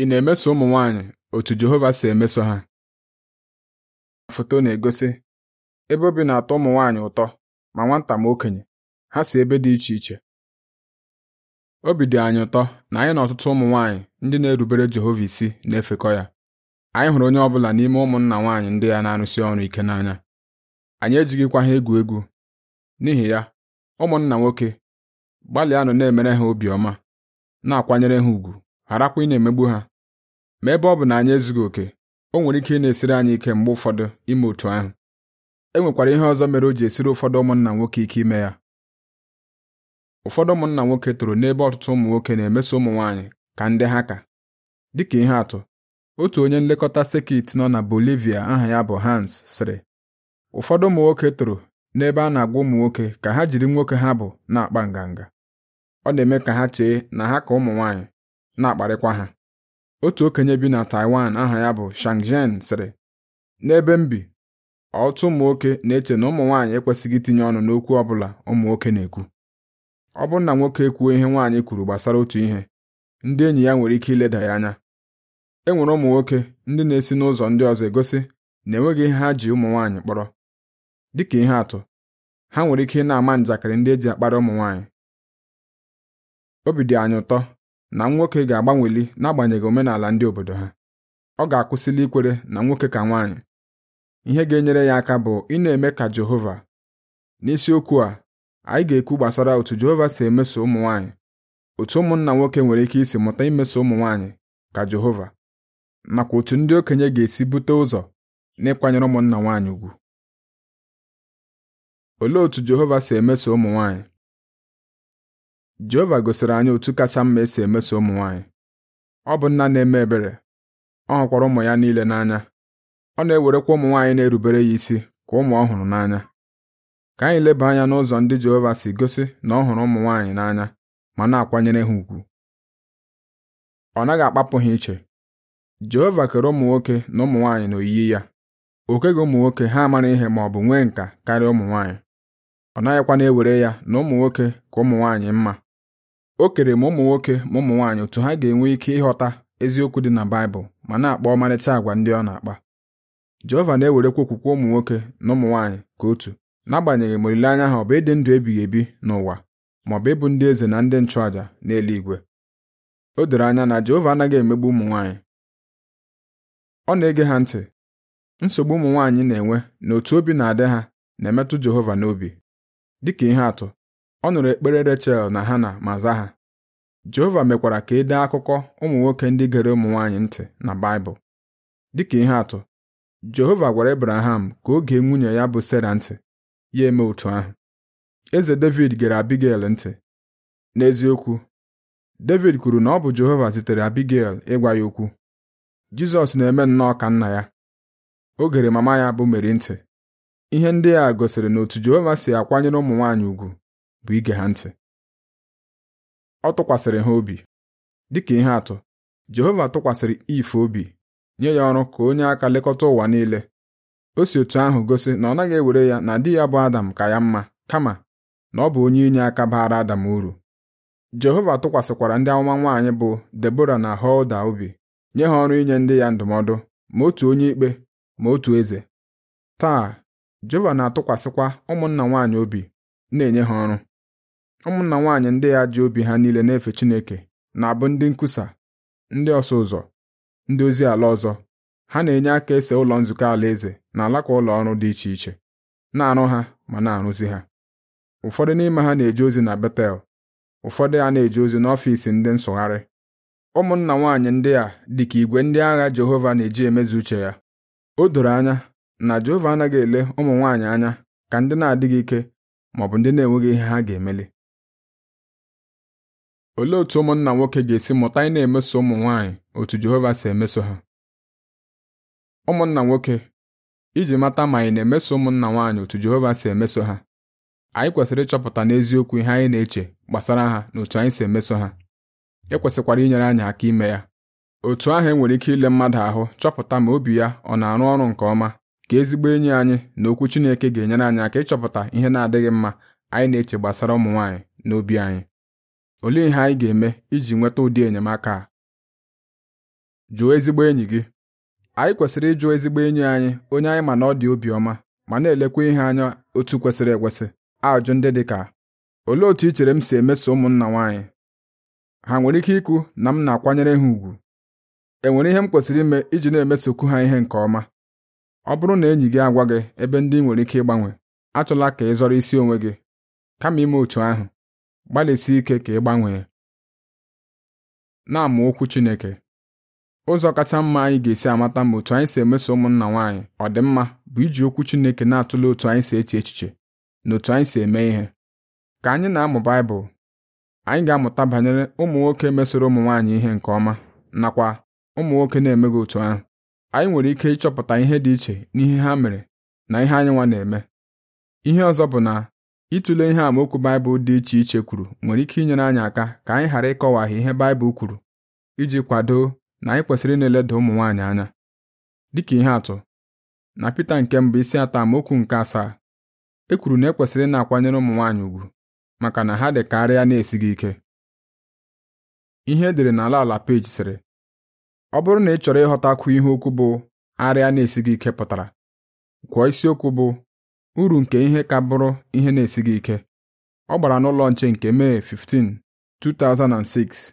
Ị na-emeso ụmụ nwanyị otu Jehova si emeso ha? Foto na-egosi ebe obi na-atọ ụmụ nwaanyị ụtọ ma nwata ma okenye ha si ebe dị iche iche obi dị anyị ụtọ na anyị na ọtụtụ ụmụ nwaanyị ndị na-erubere Jehova isi na-efekọ ya anyị hụrụ onye ọbụla n'ime ụmụnna nwaanyị ndị ya na-arụsi ọrụ ike n'anya anyị ejighịkwa ha egwu egwu n'ihi ya ụmụnna nwoke nọ na-emere ha obiọma na-akwanyere ha ùgwù gharakwa ị na-emegbu ha ma ebe ọ bụ na anyị ezughị oke o nwere ike ị na-esiri anyị ike mgbe ụfọdụ ime otu ahụ e nwekwara ihe ọzọ mere o ji esiri ụfọdụ ụmụnna nwoke ike ime ya ụfọdụ ụmụnna nwoke toro n'ebe ọtụtụ ụmụ nwoke na-emeso ụmụ nwaanyị ka ndị ha ka dịka ihe atụ otu onye nlekọta sekit nọ na Bolivia aha ya bụ Hans sịrị ụfọdụ ụmụ nwoke toro n'ebe a na-agwa ụmụ nwoke ka ha jiri nwoke ha bụ na-akpa nganga ọ na-eme ka ha chee na ha ka ụmụ nwaanyị na-akparịkwa ha otu okenye bi na Taiwan aha ya bụ Shangzhen sịrị n'ebe m bi ụmụ nwoke na-eche na ụmụ nwaanyị ekwesịghị itinye ọnụ n'okwu ọ bụla ụmụ nwoke na-ekwu ọ bụrụ na nwoke ekwuo ihe nwaanyị kwuru gbasara otu ihe ndị enyi ya nwere ike ileda ya anya e nwere ụmụ nwoke ndị na-esi n'ụzọ ndị ọzọ egosi na enweghị ihe ha ji ụmụ nwaanyị kpọrọ dịka ihe atụ ha nwere ike ịna na-ama njakịrị ndị e ji akpara ụmụ nwaanyị obi dị anyị ụtọ na nwoke ga-agbanweli n'agbanyeghị omenala ndị obodo ha ọ ga-akwụsịla ikwere na nwoke ka nwaanyị ihe ga-enyere ya aka bụ ị na-eme ka Jehova n'isiokwu a anyị ga-ekwu gbasara otu Jehova si emeso ụmụ nwaanyị otu ụmụnna nwoke nwere ike isi mụta imeso ụmụ nwaanyị ka Jehova nakwa otu ndị okenye ga-esi bute ụzọ n'ịkwanyere ụmụnna nwaanyị ugwu olee otu Jehova si emeso ụmụ nwaanyị Jehova gosiri anyị otu kacha mma esi emeso ụmụ nwaanyị ọ bụ nna na-eme ebere ọ hụkwara ụmụ ya niile n'anya ọ na-ewerekwa ụmụ nwaanyị na-erubere ya isi ka ụmụ ọhụrụ n'anya ka anyị leba anya n'ụzọ ndị Jehova si gosi na ọ hụrụ ụmụ nwaanyị n'anya ma na-akwanyere ha ùgwù ọ naghị akpapụ ha iche Jehova kere ụmụ nwoke na ụmụ nwaanyị n'oyiyi ya o keghị ụmụ nwoke ha amara ihe ma ọ bụ nwee nka karịa ụmụ nwaanyị ọ naghịkwa na-ewere ya na ụmụ nwoke ka ụmụ nwaanyị mma o kere ma ụmụ nwoke ma ụmụ nwaanyị otu ha ga-enwe ike ịghọta eziokwu dị na Baịbụl ma na-akpa ọmarịcha àgwà ndị ọ na-akpa Jehova na-ewerekwa okwukwe ụmụ nwoke na ụmụ nwaanyị ka otu n'agbanyeghị ma olileanya ha ọ bụ ịdị ndụ ebighị ebi n'ụwa ma ọ bụ ịbụ ndị eze na ndị nchụàjà n'eluigwe o doro anya na Jehova anaghị emegbu ụmụ nwaanyị ọ na-ege ha ntị nsogbu ụmụ nwaanyị na-enwe na otu obi na-adị ha na-emetụ Jehova n'obi dịka ihe atụ ọ nụrụ ekpere Rechel na Hana ma za ha Jehova mekwara ka edee dee akụkọ ụmụ nwoke ndị gere ụmụ nwaanyị ntị na Baịbụl dịka ihe atụ Jehova gwara Ebraham ka o gee nwunye ya bụ Sera ntị ya eme otu ahụ eze Devid gere Abigail ntị n'eziokwu Devid kwuru na ọ bụ Jehova zitere Abigail ịgwa ya okwu Jizọs na-eme nnọọ ka nna ya o gere mama ya bụ Meri ntị ihe ndị a gosiri na otu Jehova si akwanyere ụmụ nwaanyị ugwu bụ ige ha ntị ọ tụkwasịrị ha obi dịka ihe atụ Jehova tụkwasịrị ife obi nye ya ọrụ ka onye aka lekọta ụwa niile o si otu ahụ gosi na ọ naghị ewere ya na di ya bụ Adam ka ya mma kama na ọ bụ onye inye aka baara Adam uru Jehova tụkwasịkwara ndị amụma nwaanyị bụ Debora na holda obi nye ha ọrụ inye ndị ya ndụmọdụ ma otu onye ikpe ma otu eze taa Jehova na-atụkwasịkwa ụmụnna nwaanyị obi na-enye ha ọrụ ụmụnna nwaanyị ndị ya ji obi ha niile na-efe Chineke na-abụ ndị nkwusa ndị ọsụ ụzọ ndị ozi ala ọzọ ha na-enye aka ese ụlọ nzukọ alaeze na alaka ụlọ ọrụ dị iche iche na-arụ ha ma na-arụzi ha ụfọdụ n'ime ha na-eje ozi na Betel ụfọdụ ya na-eje ozi n'ọfiisi ndị nsụgharị ụmụnna nwaanyị ndị a dị ka igwe ndị agha Jehova na-eji emezu uche ya o doro anya na Jehova anaghị ele ụmụ nwaanyị anya ka ndị na-adịghị ike maọbụ ndị na-enweghị ihe ha ga-emeli olee otu ụmụnna nwoke ga-esi mụta ị na-emeso ụmụ nwanyị otu Jehova si emeso ha ụmụnna nwoke iji mata ma anyị na-emeso ụmụnna nwaanyị otu Jehova si emeso ha anyị kwesịrị ịchọpụta n'eziokwu ihe anyị na-eche gbasara ha na otu anyị si emeso ha e kwesịkwara inyere anyị aka ime ya otu ahụ enwere ike ile mmadụ ahụ chọpụta ma obi ya ọ na-arụ ọrụ nke ọma ka ezigbo enyi anyị na okwu Chineke ga-enyere anyị aka ịchọpụta ihe na-adịghị mma anyị na-eche gbasara ụmụ nwaanyị na obi anyị Olee ihe anyị ga-eme iji nweta ụdị enyemaka a? Jụọ ezigbo enyi gị. Anyị kwesịrị ịjụọ ezigbo enyi anyị onye anyị ma na ọ dị obiọma ma na-elekwa ihe anya otu kwesịrị ekwesị ajụ ndị dị ka olee otu i chere m si emeso ụmụnna nwaanyị? Ha nwere ike ikwu na m na-akwanyere ha ùgwù? E nwere ihe m kwesịrị ime iji na-emesokwu ha ihe nke ọma? Ọ bụrụ na enyi gị agwa gị ebe ndị nwere ike ịgbanwe, achọla ka ị zọrọ isi onwe gị, kama ime otu ahụ gbalịsi ike ka ị gbanwee na-amụ okwu Chineke ụzọ kacha mma anyị ga-esi amata ma otu anyị si emeso ụmụnna nwaanyị ọ dị mma bụ iji okwu Chineke na-atụle otu anyị si eche echiche na otu anyị si eme ihe ka anyị na-amụ Baịbụl anyị ga-amụta banyere ụmụ nwoke mesoro ụmụ nwaanyị ihe nke ọma nakwa ụmụ nwoke na-emeghị otu ahụ anyị nwere ike ịchọpụta ihe dị iche n'ihe ha mere na ihe anyị nwa na-eme ihe ọzọ bụ na Ịtụle ihe amaokwu Baịbụl dị iche iche kwuru nwere ike inyere anyị aka ka anyị ghara ịkọwaghị ihe Baịbụl kwuru iji kwado na anyị kwesịrị ị na-eleda ụmụ nwaanyị anya. Dịka ihe atụ, na Pita nke mbụ isi atọ amaokwu nke asaa, e kwuru na ekwesịrị ị na-akwanyere ụmụ nwaanyị ugwu maka na ha dị ka arịa na-esighị ike. Ihe edere n'ala ala peji sịrị, ọ bụrụ na ị chọrọ ịghọtakwu ihe okwu bụ arịa na-esighị ike pụtara, gwụọ isiokwu bụ uru nke ihe ka bụrụ ihe na-esighị ike. Ọ gbara n'ụlọ nche nke Mee 15, 2006,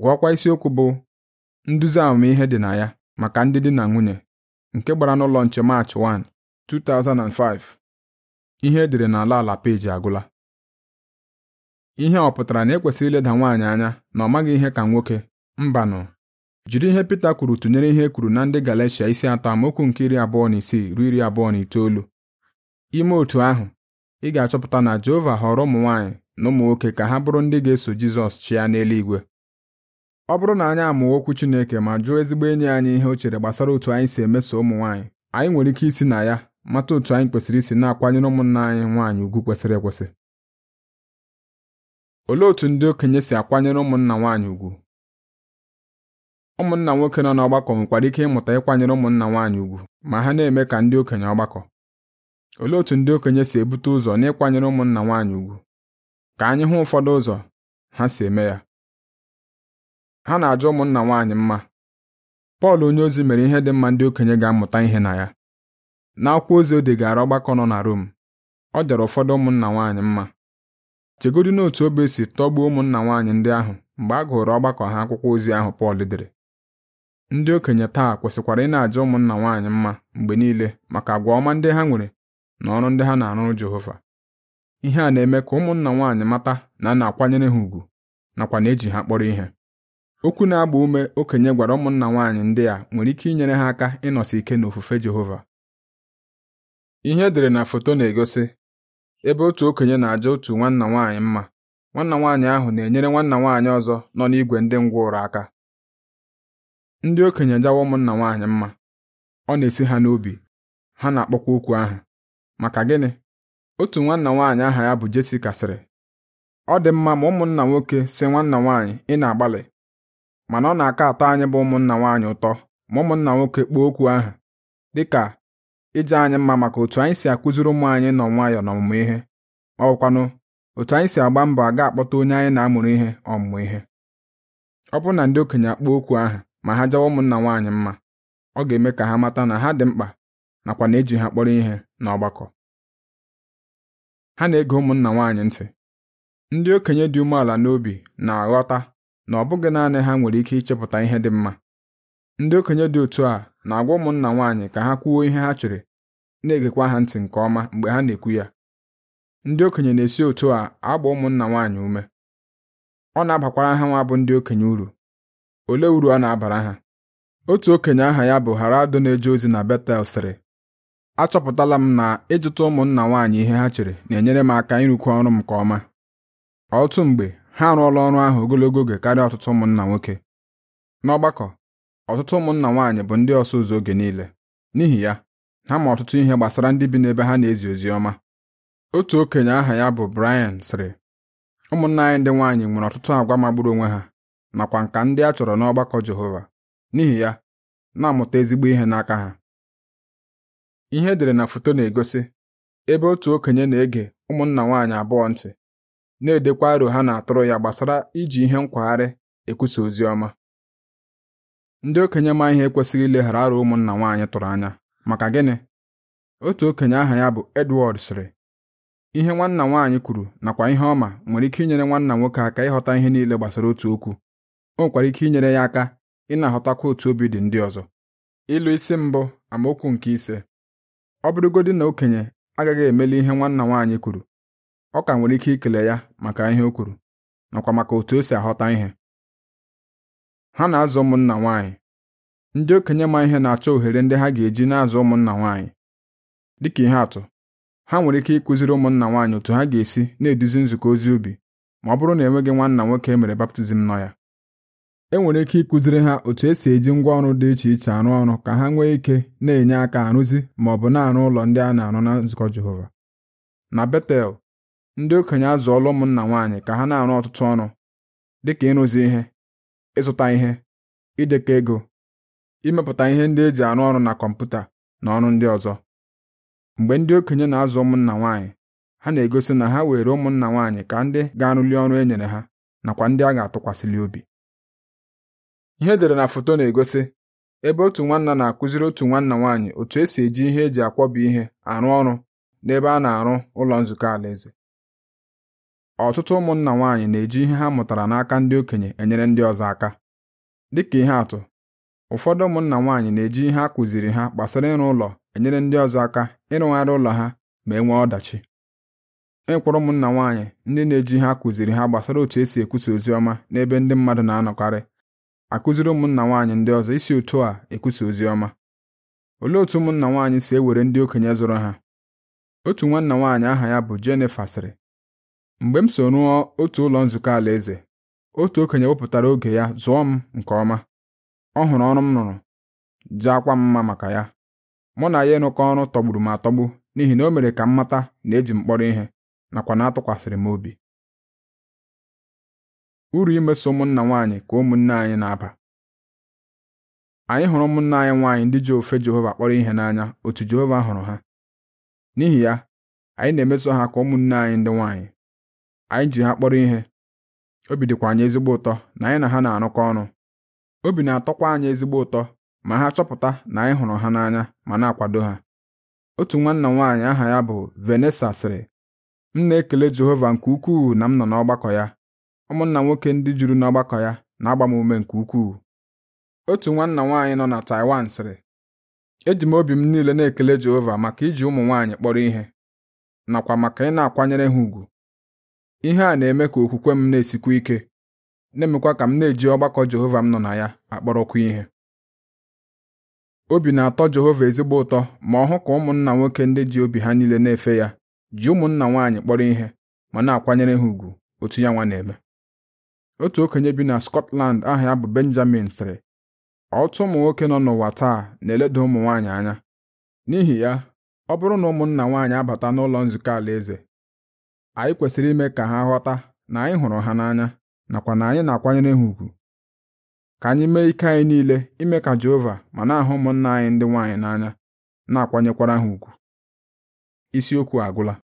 ghọọkwa isiokwu bụ Nduzi Amamihe dị na ya maka ndị di na nwunye nke gbara n'ụlọ nche Maachị 1, 2005. Ihe edere n'ala ala peji agwụla ihe a ọ pụtara na ekwesịrị ileda nwaanyị anya na ọ maghị ihe ka nwoke mbanụ jiri ihe peter kwuru tụnyere ihe e kwuru na ndị Galatia isi atọ amaokwu nke iri abụọ na isii ruo iri abụọ na itoolu ime otu ahụ ị ga-achọpụta na Jehova họrọ ụmụ nwaanyị na ụmụ nwoke ka ha bụrụ ndị ga-eso Jizọs chịa n'eluigwe ọ bụrụ na anyị amụọ okwu Chineke ma jụọ ezigbo enyi anyị ihe o chere gbasara otu anyị si emeso ụmụ nwaanyị anyị nwere ike isi na ya mata otu anyị kwesịrị isi na-akwanyere ụmụnna anyị nwaanyị ugwu kwesịrị ekwesị olee otu ndị okenye si akwanyere ụmụnna nwaanyị ugwu ụmụnna nwoke nọ n'ọgbakọ nwekwara ike ịmụta ịkwanyere ụmụnna nwaanyị ugwu ma ha na-eme ka ndị okenye ọgbakọ Olee otu ndị okenye si ebute ụzọ n'ịkwanyere ụmụnna nwaanyị ugwu? Ka anyị hụ ụfọdụ ụzọ ha si eme ya. Ha na-ajọ ụmụnna nwaanyị mma. Pọl onyeozi mere ihe dị mma ndị okenye ga-amụta ihe na ya. N'akwụkwọ ozi o degara ọgbakọ nọ na Rom, ọ dere ụfọdụ ụmụnna nwaanyị mma. Chegodị n'otu obe si tọgbuo ụmụnna nwaanyị ndị ahụ mgbe a gụrụ ọgbakọ ha akwụkwọ ozi ahụ Pọl dere. Ndị okenye taa kwesịkwara ị na-aja ụmụnna nwaanyị mma mgbe niile maka àgwà ọma ndị ha nwere na ọrụ ndị ha na-arụrụ Jehova ihe a na-eme ka ụmụnna nwaanyị mata na a na-akwanyere ha ùgwù nakwa na eji ha kpọrọ ihe okwu na-agba ume okenye gwara ụmụnna nwaanyị ndị a nwere ike inyere ha aka ịnọsi ike n'ofufe Jehova ihe edere na foto na-egosi ebe otu okenye na-aja otu nwanna nwaanyị mma nwanna nwaanyị ahụ na-enyere nwanna nwaanyị ọzọ nọ n'igwe ndị ụrụ aka ndị okenye jawa ụmụnna nwaanyị mma ọ na-esi ha n'obi ha na-akpọkwa okwu ahụ maka gịnị otu nwanna nwaanyị aha ya bụ Jessica sịrị ọ dị mma ma ụmụnna nwoke si nwanna nwaanyị ị na-agbalị mana ọ na-aka atọ anyị bụ ụmụnna nwaanyị ụtọ ma ụmụnna nwoke kpuo okwu ahụ dịka ije anyị mma maka otu anyị si akụziri ụmụ anyị nọ nwayọọ n'ọmụmụ ihe ọ otu anyị si agba mbọ aga akpọta onye anyị na-amụrụ ihe ọmụmụ ihe ọ bụrụ na ndị okenye akpọọ okwu ahụ ma ha jawa ụmụnna nwaanyị mma ọ ga-eme ka ha mata na ha dị mkpa nakwa na eji ha kpọrọ ihe n'ọgbakọ ha na-ege ụmụnna nwaanyị ntị ndị okenye dị umeala n'obi na-aghọta na ọ bụghị naanị ha nwere ike ịchepụta ihe dị mma ndị okenye dị otu a na-agwa ụmụnna nwaanyị ka ha kwuo ihe ha chere na-egekwa ha ntị nke ọma mgbe ha na-ekwu ya ndị okenye na-esi otu a agba ụmụnna nwaanyị ume ọ na-abakwara ha nwa bụ ndị okenye uru olee uru ọ na-abara ha otu okenye aha ya bụ adụ na-eje ozi na Betel sịrị achọpụtala m na ịjụta ụmụnna nwaanyị ihe ha chere na-enyere m aka ịrụkwu ọrụ m nke ọma ọtụtụ mgbe ha arụọla ọrụ ahụ ogologo oge karịa ọtụtụ ụmụnna nwoke n'ọgbakọ ọtụtụ ụmụnna nwaanyị bụ ndị ọsụ ụzọ oge niile n'ihi ya ha ma ọtụtụ ihe gbasara ndị bi n'ebe ha na-ezi ozi ọma otu okenye aha ya bụ Brian sịrị ụmụnna anyị ndị nwaanyị nwere ọtụtụ agwa magburu onwe ha nakwa nka ndị a chọrọ n'ọgbakọ Jehova n'ihi ya na-amụta ezigbo ihe n'aka ha ihe edere na foto na-egosi ebe otu okenye na-ege ụmụnna nwaanyị abụọ ntị na-edekwa aro ha na-atụrụ ya gbasara iji ihe nkwagharị ekwusa ozi ọma ndị okenye ma ihe ekwesịghị ileghara aro ụmụnna nwaanyị tụrụ anya maka gịnị otu okenye aha ya bụ Edward sịrị ihe nwanna nwaanyị kwuru nakwa ihe ọma nwere ike inyere nwanna nwoke aka ịghọta ihe niile gbasara otu okwu o nwekwara ike inyere ya aka ị na otu obi dị ndị ọzọ ịlụ isi mbụ amaokwu nke ise ọ bụrụgodi na okenye agaghị emeli ihe nwanna nwaanyị kwuru ọ ka nwere ike ikele ya maka ihe o kwuru nakwa maka otu o si aghọta ihe ha na-azụ ụmụnna nwaanyị ndị okenye ma ihe na-achọ ohere ndị ha ga-eji na-azụ ụmụnna nwaanyị dịka ihe atụ ha nwere ike ịkụziri ụmụnna nwaanyị otu ha ga-esi na-eduzi nzukọ ozi ubi ma ọ bụrụ na enweghị nwanna nwoke e mere baptizim nọ ya enwere ike ịkụziri ha otu esi eji ngwaọrụ dị iche iche arụ ọrụ ka ha nwee ike na-enye aka arụzi ma ọ bụ na-arụ ụlọ ndị a na-arụ na nzukọ Jehova na Betel ndị okenye azụọla ụmụnna nwaanyị ka ha na-arụ ọtụtụ ọrụ dịka ịrụzi ihe ịzụta ihe idekọ ego imepụta ihe ndị eji arụ ọrụ na kọmputa na ọrụ ndị ọzọ mgbe ndị okenye na-azụ ụmụnna nwaanyị ha na-egosi na ha were ụmụnna nwaanyị ka ndị ga-arụli ọrụ e nyere ha nakwa ndị a ga-atụkwasịli obi ihe dere na foto na-egosi ebe otu nwanna na-akụziri otu nwanna nwaanyị otu esi eji ihe eji akwọba ihe arụ ọrụ n'ebe a na-arụ ụlọ nzukọ alaeze ọtụtụ ụmụnna nwaanyị na-eji ihe ha mụtara n'aka ndị okenye enyere ndị ọzọ aka dịka ihe atụ ụfọdụ ụmụnna nwaanyị na-eji ihe a kụziri ha gbasara ịrụ ụlọ enyere ndị ọzọ aka ịrụgharị ụlọ ha ma e nwee ọdachi ịkwụrụ ụmụnna nwaanyị ndị na-eji ihe a kụziri ha gbasara otu esi ekwusa ozi ọma n'ebe ndị mmadụ na-anọkarị akụziri ụmụnna nwaanyị ndị ọzọ isi otu a ekwusa ozi ọma olee otu ụmụnna nwaanyị si ewere ndị okenye zụrụ ha otu nwanna nwaanyị aha ya bụ Jennifer sịrị mgbe m so rụọ otu ụlọ nzukọ alaeze otu okenye wepụtara oge ya zụọ m nke ọma ọ hụrụ ọrụ m rụrụ jaakwa m mma maka ya mụ na ya ịnụkọ ọrụ tọgburu m atọgbu n'ihi na o mere ka m mata na eji m kpọrọ ihe nakwa na atụkwasịrị m obi uru imeso ụmụnna nwaanyị ka ụmụnne anyị na-aba anyị hụrụ ụmụnna anyị nwaanyị ndị ji ofe Jehova kpọrọ ihe n'anya otu Jehova hụrụ ha n'ihi ya anyị na-emeso ha ka ụmụnne anyị ndị nwaanyị anyị ji ha kpọrọ ihe obi dịkwa anyị ezigbo ụtọ na anyị na ha na-arụkọ ọrụ obi na-atọkwa anyị ezigbo ụtọ ma ha chọpụta na anyị hụrụ ha n'anya ma na-akwado ha otu nwanna nwaanyị aha ya bụ venesa sịrị m na-ekele Jehova nke ukwuu na m nọ n'ọgbakọ ya ụmụnna nwoke ndị juru n'ọgbakọ ya na-agba m ume nke ukwuu otu nwanna nwaanyị nọ na Taiwan sịrị eji m obi m niile na-ekele Jehova maka iji ụmụ nwaanyị kpọrọ ihe nakwa maka ị na-akwanyere ha ùgwù ihe a na-eme ka okwukwe m na-esikwu ike na-emekwa ka m na-eji ọgbakọ Jehova m nọ na ya akpọrọkwa ihe obi na-atọ Jehova ezigbo ụtọ ma ọ hụ ka ụmụnna nwoke ndị ji obi ha niile na-efe ya ji ụmụnna nwaanyị kpọrọ ihe ma na-akwanyere ha ùgwù otu ya nwa na-eme otu okenye bi na Scotland aha ya bụ Benjamin sịrị otu ụmụ nwoke nọ n'ụwa taa na-eleda ụmụ nwaanyị anya n'ihi ya ọ bụrụ na ụmụnna nwaanyị abata n'ụlọ nzukọ alaeze anyị kwesịrị ime ka ha ghọta na anyị hụrụ ha n'anya nakwa na anyị na-akwanyere ha ùgwù ka anyị mee ike anyị niile ime ka Jehova ma na-ahụ ụmụnna anyị ndị nwaanyị n'anya na-akwanyekwara ha ùgwù isiokwu agwụla